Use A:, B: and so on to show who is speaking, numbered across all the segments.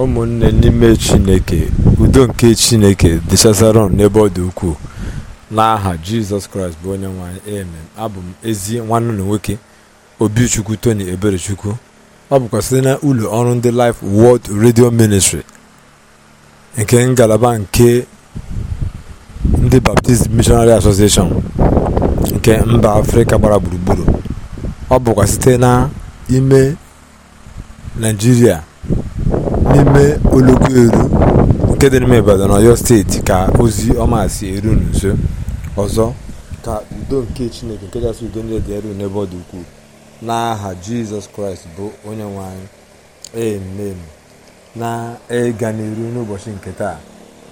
A: ụmụnne n'ime chineke udo nke chineke dịchazara n'ebe ọ dị ukwuu n'aha jizọs kraịst bụ onye nwanyị amen abụ m ezi nwanne na nwoke obichukwu tony eberechukwu ọ bụkwa site na ụlọ ọrụ ndị Life World Radio Ministry nke ngalaba nke ndị Baptist Missionary Association nke mba afrịka gbara gburugburu ọ bụkwa site na ime naijiria n'ime oloko eru nke dị n'ime ibadan ọyọ steeti ka ozi ọma si eru n'uzo ọzọ ka udo nke chineke nke kachasị udo niile dị eru n'ebe ọ dị ukwuu n'aha jizọs kraịst bụ onye nwe anyị na ega n'iru n'ụbọchị nke taa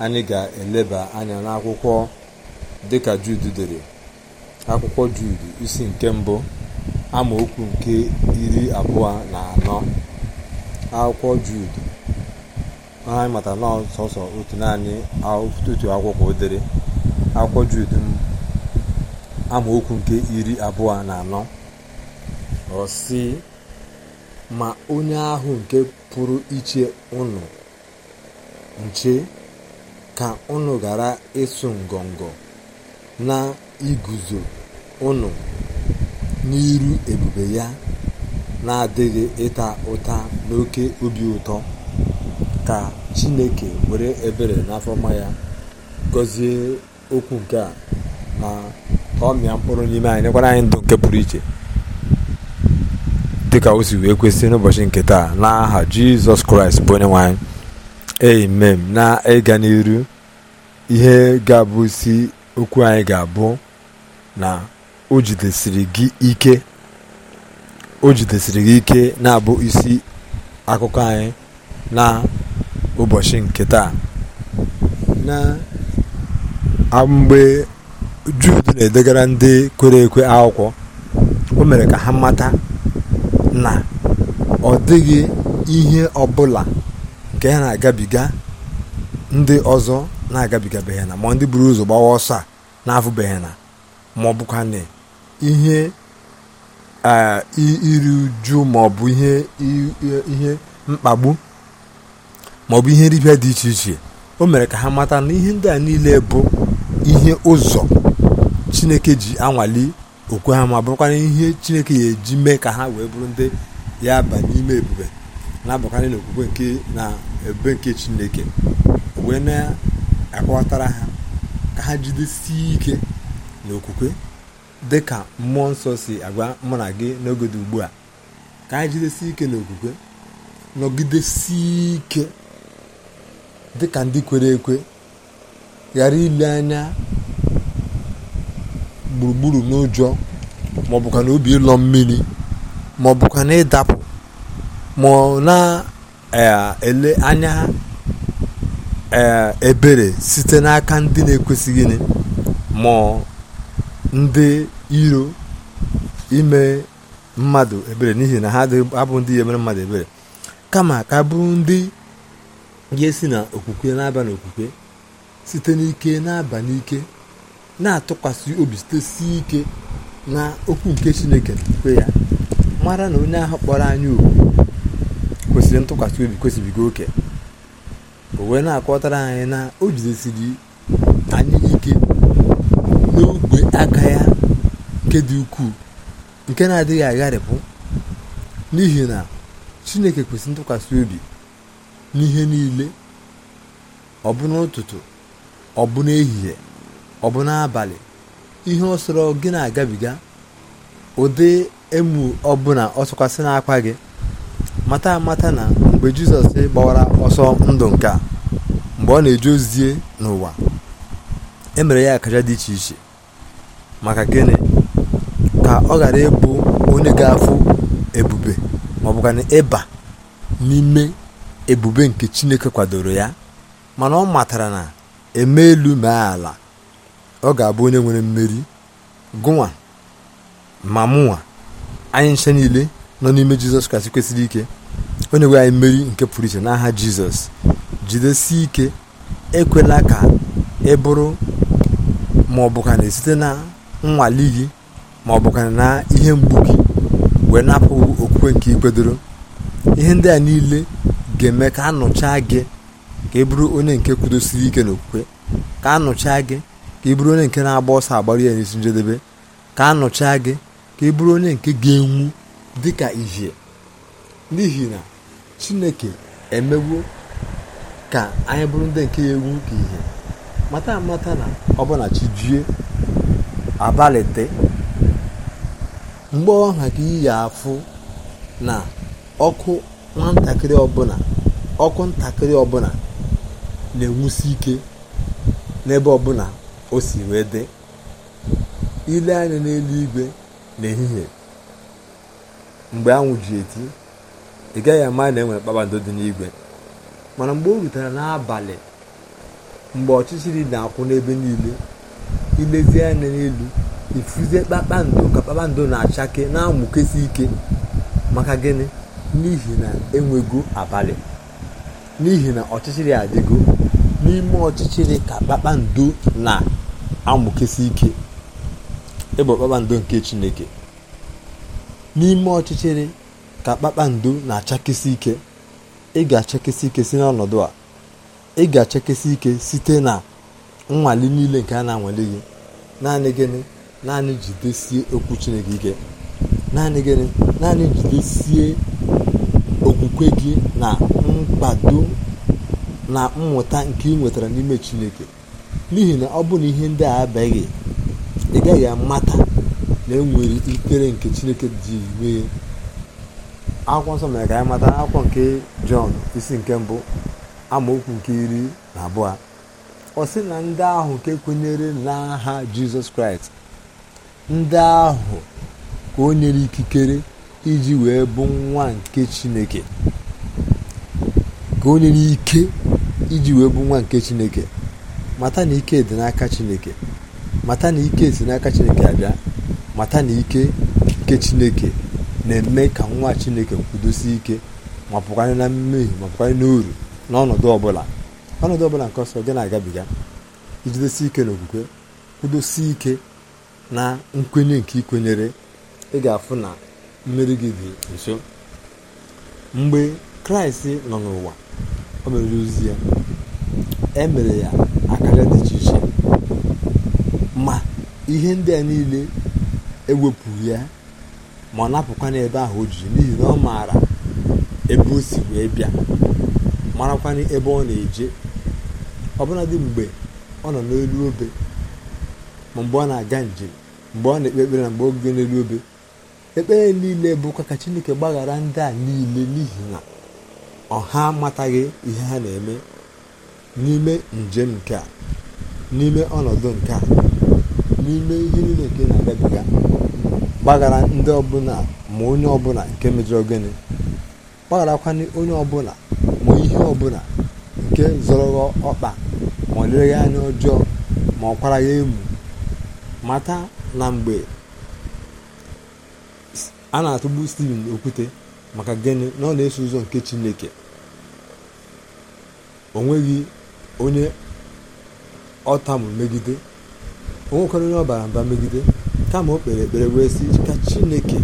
A: anyị ga-eleba anya n'akwụkwọ dịka jud dere akwụkwọ jud isi nke mbụ amaokwu nke iri abụọ na anọ akwụkwọ jud anyị mata na sọsọ otu naanị otu akwụkwọ dere akwụkwọ Jud amaokwu nke iri abụọ na anọ ọ si ma onye ahụ nke pụrụ iche ụnụ nche ka unu gara ịsụ ngọngọ na iguzo ụnụ n'iru ebube ya na-adịghị ịta ụta n'oke obi ụtọ ka chineke were ebere n'afọ n'afọma ya gọzie okwu nke a na ka ọ mịa mkpụrụ n'ime anyị nyekwara anyị ndụ nke pụrụ iche dịka o si wee kwesị n'ụbọchị nke taa n'aha jizọs kraịst bụ onye nwe anyị amen na ịga n'iru ihe ga-abụ isi okwu anyị ga-abụ na o jidesiri gị ike o jidesiri gị ike na-abụ isi akụkọ anyị na ụbọchị nke taa na mgbe Jud na-edegara ndị kwere ekwe akwụkwọ o mere ka ha mata na ọ dịghị ihe ọbụla nke ha na-agabiga ndị ọzọ na-agabigabeghị na ma ndị buru ụzọ gbawa ọsọ a na-afụbeghị na ma ọ na ihe iri uju maọbụ ihe mkpagbu maọbụ ihe nripịa dị iche iche o mere ka ha mata na ihe ndị a niile bụ ihe ụzọ chineke ji anwale okwe ha ma bụrụkwana ihe chineke ya eji mee ka ha wee bụrụ ndị ya ba n'ime ebube na-abụkarị n'okwukwe nke na ebube nke chineke wee na-akọwatara ha ka ha jidesie ike n'okwukwe dị ka mmụọ nsọ si agwa mụ na gị n'oge dị ugbu a ka ha jidesie ike n'okwukwe nọgidesie ike dịka ndị kwere ekwe ghara ile anya gburugburu n'ụjọ ma ọ na obi ịlọ mmiri ma ọ na ịdapụ ma ọ na-ele e, anya e, ebere site n'aka ndị na-ekwesịghị ma ndị iro ime mmadụ ebere n'ihi na ha abụ ndị ihe emere mmadụ ebere kama ka bụ ndị ga esi na okwukwe na-aba n'okwukwe site n'ike na-aba n'ike na-atụkwasị obi site si ike na okwu nke chineke kwe ya mara na onye ahụ kpọrọ anyị okwu kwesịrị ntụkwasị obi kwesịbigo oke o wee na-akọtara anyị na o jidesiri anyị ike n'ogbe aka ya nke dị ukwuu nke na-adịghị agharịpụ n'ihi na chineke kwesịrị ntụkwasị obi n'ihe niile ọ bụ n'ụtụtụ ọ bụ n'ehihie ọ bụ n'abalị ihe ọsọrọ gị na-agabiga ụdị emu ọbụla ọsọkwasị n'akwa gị mata amata na mgbe jizọs gbawara ọsọ ndụ nke a mgbe ọ na-eje ozie n'ụwa e mere ya akaja dị iche iche maka gịnị ka ọ ghara ịbụ onye ga-afụ ebube maọbụkana ịba n'ime ebube nke chineke kwadoro ya mana ọ matara na eme elu mee ala ọ ga-abụ onye nwere mmeri gụnwa ma mụnwa anyị nche niile nọ n'ime jizọs kraịst kwesịrị ike onye nwe anyị mmeri nke pụrụ iche n'aha jizọs jidesi ike ekwela ka ị bụrụ ma ọ bụkana site na nnwale gị ma ọ bụkana na ihe mgbu wee napụ okwukwe nke ikpedoro ihe ndị a niile ga-eme ka a nụchaa gị ka ị e onye nke kwudosiri ike n'okwukwe ka a nụchaa gị ka ị e bụrụ onye nke na-agba ọsọ agbara ya n'isi njedebe ka a nụchaa gị ka ị e bụrụ onye nke ga-enwu dị ka ihe n'ihi na chineke emewo ka anyị bụrụ ndị nke ya egwu ka ihe mata amata na ọbụna chijie abalị dị. mgbe ka iyi afụ na ọkụ nwatakịrị ọbụla ọkụ ntakịrị ọbụla na-enwusi ike n'ebe ọbụla o si wee dị ile anya n'eluigwe n'ehihie mgbe anwụ ji eti ị gaghị ama na enwere kpakpando dị n'igwe mana mgbe o rutere n'abalị mgbe ọchịchịrị na-akwụ n'ebe niile ilezie anya n'elu ifuzie kpakpando ka kpakpando na-achake na-amụkesi ike maka gịnị n'ihi na enwego abalị n'ihi na ọchịchịrị adịgo n'ime ọchịchịrị ka kpakpando na-amụkesi ike ịbụ kpakpando nke chineke n'ime ọchịchịrị ka kpakpando na-achakesi ike ị ga-achakesi ike si n'ọnọdụ a ị ga-achakesi ike site na nnwale niile nke a na-anwale gị naanị gịnị naanị jidesie okwu chineke ike naanị gịnị naanị jidesie okwukwe gị na mkpado na mmụta nke ị nwetara n'ime chineke n'ihi na ọ bụrụ ihe ndị a abịaghị ị gaghị amata na enwere ikere nke chineke dị mee akwụkwọ nsọ mere ka anyị mata akwụkwọ nke jọn isi nke mbụ amaokwu nke iri na abụọ ọ sị na ndị ahụ nke kwenyere n'aha jizọs kraịst ndị ahụ ka o nyere ikikere iji wee bụ nwa nke chineke ka onye n'ike iji wee bụ nwa nke chineke mata na ike dị n'aka chineke mata na ike si n'aka chineke abịa mata na ike nke chineke na-eme ka nwa chineke kwudosie ike ma pụkwanye na mmehie ma pụkwanye n'uru n'ọnọdụ ọbụla ọnọdụ ọbụla nke ọsọ gị na-agabiga ijidesi ike n'okwukwe kwudosi ike na nkwenye nke ikwenyere ị ga-afụ na mmeri gị dị nso mgbe kraịst nọ n'ụwa o mere ozi ya e mere ya akara dị iche iche ma ihe ndị a niile ewepụ ya ma ọ napụkwa n'ebe ahụ o ji n'ihi na ọ maara ebe o si wee bịa marakwana ebe ọ na-eje ọbụladị mgbe ọ nọ n'elu obe ma mgbe ọ na-aga njem mgbe ọ na-ekpe ekpere na mgbe oge n'elu obe ekpere niile bụkwa ka chineke gbaghara ndị a niile n'ihi na ọha amataghị ihe ha na-eme n'ime njem nke a n'ime ọnọdụ nke a n'ime ihe niile nke na-agabiga gbaghara ndị ọbụla ma onye ọbụla nke mejọrọ gịnị gbagharakwanye onye ọbụla ma ihe ọbụla nke zọrọ ọkpa ma ọ anya ọjọọ ma ọ ya emu mata na mgbe a na-atụgbu Steven okwute maka gịnị na ọ na-eso ụzọ nke Chineke o nweghị onye ọtamụ megide onwekwara onye ọbara mba megide kama o kpere ekpere wee sị ka Chineke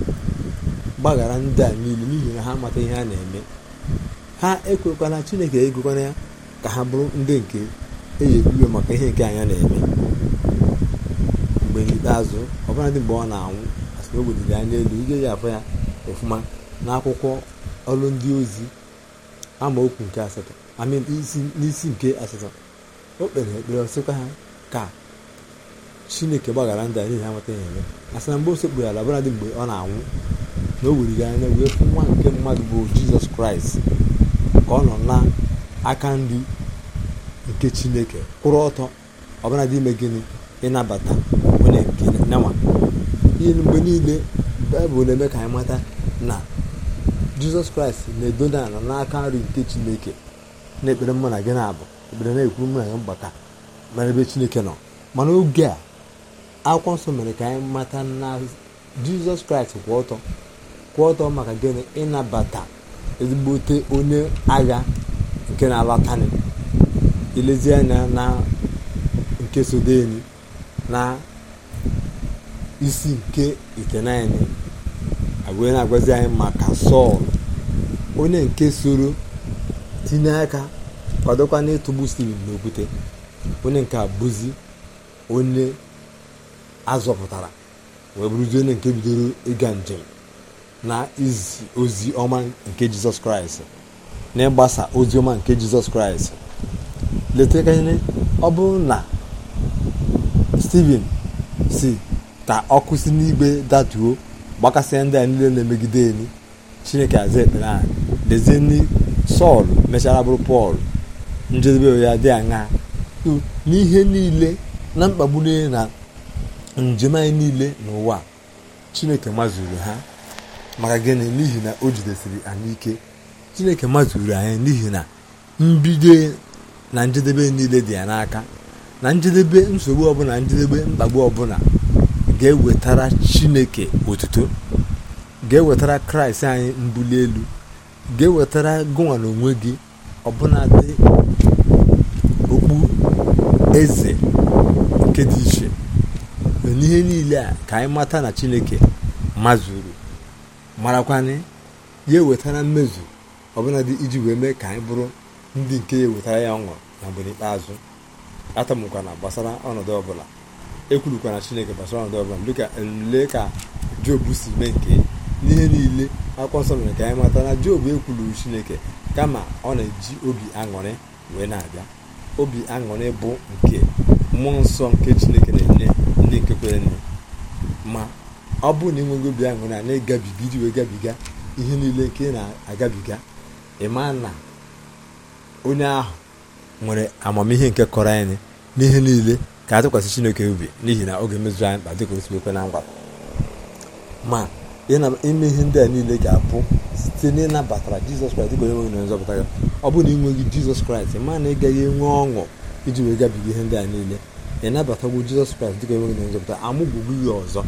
A: gbaghara ndị a niile n'ihi na ha amata ihe a na-eme ha ekwekwala Chineke egokwana ya ka ha bụrụ ndị nke eji ebiwe maka ihe nke anya na-eme mgbe n'ikpeazụ ọbụladị mgbe ọ na-anwụ o weliri anya elu ị ya afọ ya ọfụma n'akwụkwọ ọrụ ndị ozi amaokwu nke asatọ n'isi nke asatọ o kpere ekpere ọsịkwa ha ka chineke gbaghara ndị a n'ihi amata ya eme asị na mgbe o ala bụladị mgbe ọ na-anwụ na o weliri anya wee fụ nwa nke mmadụ bụ jizọs kraịst ka ọ nọ na aka nri nke chineke kwụrụ ọtọ ọbụladị ime gịnị ịnabata onye nke nyanwa ihe mgbe niile baịbụl na-eme ka anyị mata na jizọs kraịst na-edoda ala n'aka nri nke chineke na-ekpere mụ na gị na-abụ ekpere na-ekwuru mụ na gị mgbata mara ebe chineke nọ mana oge a akwụkwọ nsọ mere ka anyị mata na jizọs kraịst kwụ ọtọ kwụ ọtọ maka gịnị ịnabata ezigbote onye agha nke na-alatani ilezi na nke sodeni na isi nke itenaịnị agwee na-agwazi anyị maka sọl onye nke soro tinye aka kwadokwa n'ịtụgbu steven n'okwute onye nke bụzi onye azọpụtara wee bụrụzi onye nke bidoro ịga njem na izi ozi ọma nke jizọs kraịst na ịgbasa ozi ọma nke jizọs kraịst leta ọ bụrụ na steven si ka ọkụ si n'igwe datuo gbakasịa ndị a niile na-emegide elu chineke aza ekpere anyị lezie ndị sọl mechara bụrụ pọl njedebe ya dị aṅa n'ihe niile na mkpagbu niile na njem anyị niile n'ụwa chineke mazuru ha maka gịnị n'ihi na o jidesiri anyị ike chineke mazuru anyị n'ihi na mbido na njedebe niile dị ya n'aka na njedebe nsogbu ọbụla njedebe mkpagbu ọbụla ga-ewetara chineke otuto ga-ewetara kraịst anyị mbuli elu ga-ewetara gụwa na onwe gị ọbụnadị okpu eze nke dị iche n'ihe niile a ka anyị mata na chineke mazuru marakwanị ya ewetara mmezu ọbụladị iji wee mee ka anyị bụrụ ndị nke ya ewetara ya ọṅụ na mgbe n'ikpeazụ atamụkwana gbasara ọnọdụ ọbụla ekwurukwara chineke basara ndị ọbụla dịka ole ka jobu si mee nke n'ihe niile akwụkwọ nsọ mere ka anyị mata na jobu ekwuluru chineke kama ọ na-eji obi aṅụrị wee na-abịa obi aṅụrị bụ nke mmụọ nsọ nke chineke na-enye ndị nke kwere nne ma ọ bụrụ na ịnweghị obi aṅụrị a na-egabiga iji wee gabiga ihe niile nke na-agabiga ịma na onye ahụ nwere amamihe nke kọrọ anyị n'ihe niile ka atụkwasị chineke obi n'ihi na oge mezuru anyị mkpa dị o si na ngwa ma ime ihe ndị a niile ga-abụ site na ịnabatara jizọs kraịst dịka onye nwe na nzọpụta ya ọ bụrụ na ịnweghị jizọs kraịst ma na ị gaghị enwe ọṅụ iji wee gabiga ihe ndị a niile ịnabatagwo jizọs kraịst dịka onye nwe na nzọpụta amụgbugo ya ọzọ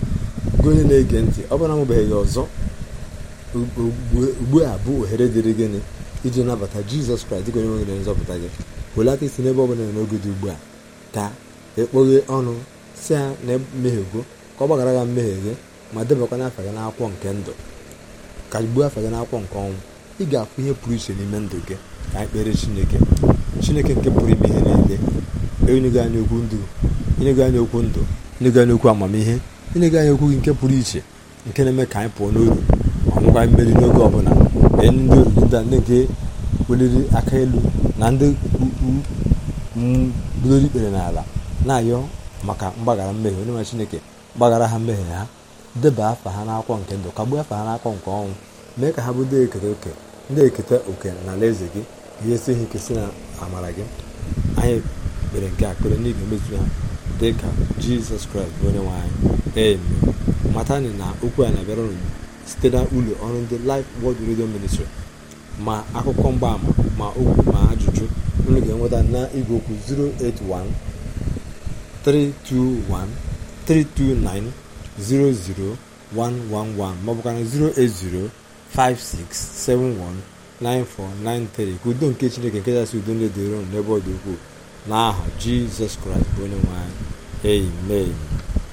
A: gị onye na-ege ntị ọ bụrụ na amụbeghị ya ọzọ ugbu a bụ ohere dịrị gịnị iji nabata jizọs kraịst dịka onye nwe na nzọpụta gị welata isi n'ebe ọ bụla n'oge dị ugbu a taa ekpoghe ọnụ si ya na emehiego ka ọ gbaghara gha mmehie gị ma debakwa afa gị n'akwụkwọ nke ndụ ka gbuo afa gị n'akwụkwọ nke ọnwụ ị ga-akwụ ihe pụrụ iche n'ime ndụ gị ka anyị kpere chineke chineke nke pụrụ ime ihe niile enyego anyị okwu ndụ enyego anyị okwu ndụ enyego anyị okwu amamihe enyego anyị okwu gị nke pụrụ iche nke na-eme ka anyị pụọ n'oru ma nwekwa mmeri n'oge ọbụla ee ndị oriri ndị ndị nke weliri aka elu na ndị ukwu ikpere n'ala na-ayọ maka mgbaghara mmehie onye nwe chineke gbaghara ha mmehie ha deba afa ha n'akwụkwọ nke ndụ kagbuo afa ha nakwọ nke ọnwụ mee ka ha bụ ndị ekere oke ndị eketa oke na alaeze gị ga-esi ha ike si na amara gị anyị mere nke a kpere n'ihi emezu ha dị ka jizọs kraịst bụ onye nwe anyị ee matani na okwu a na-abịara site na ụlọ ọrụ ndị Life Word Radio Ministry ma akụkọ mgbaama ma okwu ma ajụjụ unu ga-enweta na igwe okwu 081 321 329 00111 080 56719493 ka udo nke chineke nke kachasị udo ndị dịron n'ebe ọ dị ukwuu n'aha jizọs kraịst bụ onye nwe anyị amen